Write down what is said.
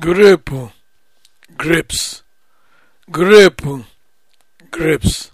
grape grapes grape grapes